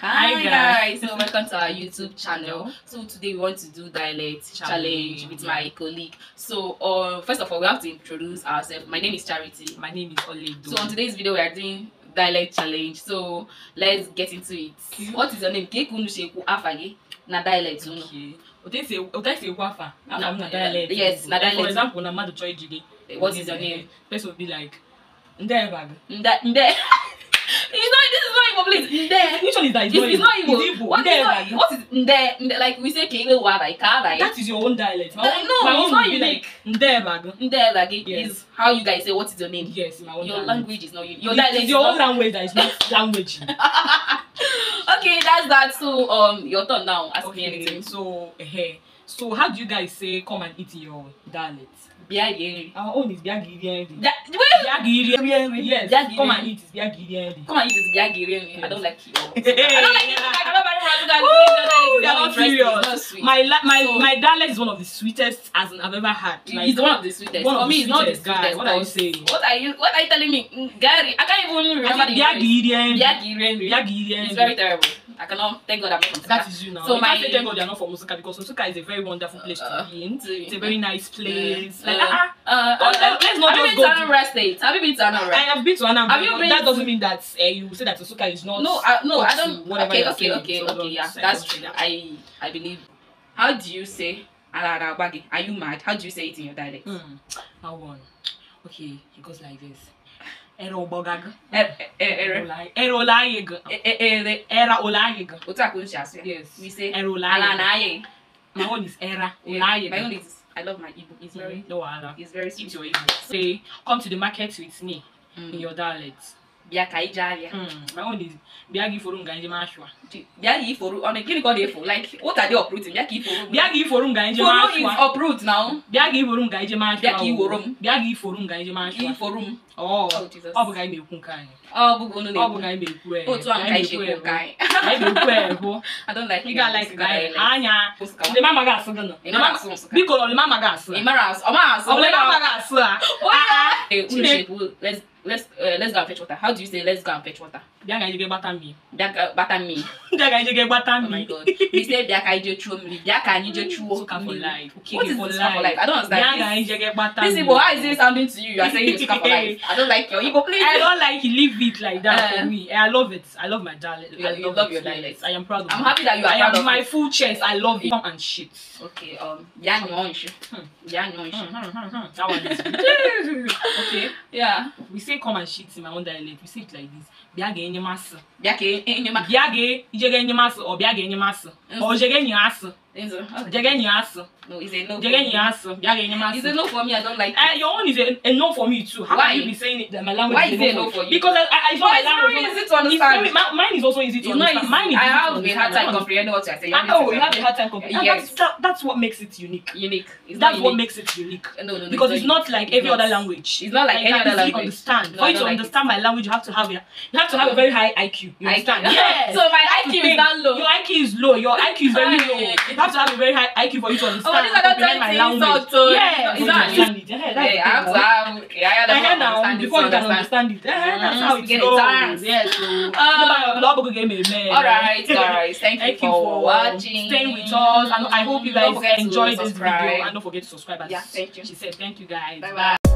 Hi, guys. so welcome to our YouTube channel. So today we want to do dialect challenge, with my colleague. So uh, first of all, we have to introduce ourselves. My name is Charity. My name is Oledo. So on today's video, we are doing dialect challenge. So let's get into it. What is your name? Kekunuseku Afage. Na dialect, you know. Okay. Wafa. I'm na eh, dialect. Yes, na dialect. For example, na madu choy jige. Eh, what is your eh, name? Person would be like, Ndebag. Nde. it's not this is not even place. Nde. Which one is that? It's, it's not even It's What, Nde, not, what is Nde? Nde like we say Kele wa like ka like. That is your own dialect. My own, no, my it's own not unique. Like, Nde bag. Nde bag is how you guys say what is your name. Yes, my own. Your language, is not unique. Your it, dialect. It's your own language that is not language. okay, that's that. So um, your turn now. Ask okay, me anything. So hey, eh, eh. so how do you guys say come and eat your dialect? Biagiri. Our own is Biagiri Enri. That, Biagiri Enri. Yes, Biagiri. come and eat. It's Biagiri Enri. Come and eat. It's Biagiri Enri. I don't like you. I don't like you. I cannot marry Razuka. They are not sweet. My, my, my darling is one of the sweetest as I've ever had. He's one of the sweetest. One of For me, it's not the sweetest. Guys, what are you saying? What are you, what are you telling me? Gary, I can't even remember the Biagiri Enri. Biagiri Enri. Biagiri It's very terrible. I cannot thank God I'm not from That Sika. is you now. So you my, can't say thank God you're not from Osaka because Osaka is a very wonderful place to uh, be in. it's a very nice place. Yeah. Like, uh, ah, ah. uh, uh, God, uh, uh, let's not have you been to Anambra State? Have you been to Anambra? I have been to Anambra. Have you been that doesn't mean that uh, you say that Osaka is not. No, uh, no, I don't. Okay, okay, okay, okay. Yeah, that's true. I I believe. How do you say Alarabagi? Are you mad? How do you say it in your dialect? Mm. How one? Okay, it goes like this. Era Obogaga. Era. Era Olayiga. Era Olayiga. Otaku Yes. We say Era Olayiga. My own is Era Olayiga. My own is I love my Igbo. It's very no, It's very sweet. It's your Igbo. Say, come to the market with me in mm. your dialect bịa ka anyị jee ahịa hmm, bịa gị iforo nga njem ashwa bịa gị iforo ọ gịnị ka ọ na-efo like what are they uprooting bịa ka iforo bịa ka iforo nga njem ashwa foro is uproot now bịa ka iforo nga njem ashwa bịa ka iworo m bịa ka iforo nga njem ashwa iforo m ọ bụ ka anyị na-ekwu nke anyị ọ bụ unu na-ekwu ọ bụ ka anyị na-ekwu ee otu ahụ ka anyị ji ekwu nke anyị anyị na-ekwu ee bụ ị ga-alike ka anyị e, anya lema amaghị asụ gị nọ biko lema amaghị asụ ọ maghị asụ ọ lema amaghị asụ a let's uh, let's go and fetch water how do you say let's go and fetch water Biakaije get better me. Biaka better me. Biakaije get better me. Oh my god. You say Biakaije throw me. Biakaije throw me. Suka for life. Okay, what is for life? for life? I don't understand. Biakaije get better Listen, but how is it sounding to you? You are saying you suka for life. I don't like your Igbo place. I don't like you leave it like that for uh-huh. me. I love it. I love my dialect. I love, you love your dialect. I am proud of I'm it. happy that you are I proud of my full chest. I love it. Come And shit. Okay. Um. Yanyoish. Hmm. Yanyoish. Hmm, hmm, that one is good. okay. Yeah. We say come and shit in my own dialect. We say it like this. Biakaije enyemasị bịa ka e- enyemasị bịa ga ijega enyemasị ọ bịa ga enyemasị ọ jere enyi asị It's okay. Again, No, it's a no. Is you a no for me. I don't like. Uh, your own is a, a no for me too. How Why? can you be saying it that my language Why is, is a no, for you? Because uh, I, I, I my language is easy to understand. It's very, mine is also easy to understand. Easy. Mine is I have a hard time comprehending what you're saying. Oh, you have a hard time comprehending. Yes. That's, that, that's what makes it unique. Unique. It's that's unique. what makes it unique. No, no, no. Because it's not like every other language. It's not like any other language. Understand. For you to understand my language, you have to have you have to have a very high IQ. You understand? Yes. So my IQ is that low. Your IQ is low. Your IQ is very low have to have a very high IQ for you to oh, understand. Oh, these are not my language. So yeah, exactly. Yeah, yeah, I have to have. Yeah, I have to understand before you can understand it. Mm-hmm. That's how it goes. Yes. Lobo gave me a man. All right, guys. Thank you for watching, staying with us, and I hope you guys enjoyed this video. And don't forget to subscribe. Yeah, thank you. She said, thank you guys. Bye bye.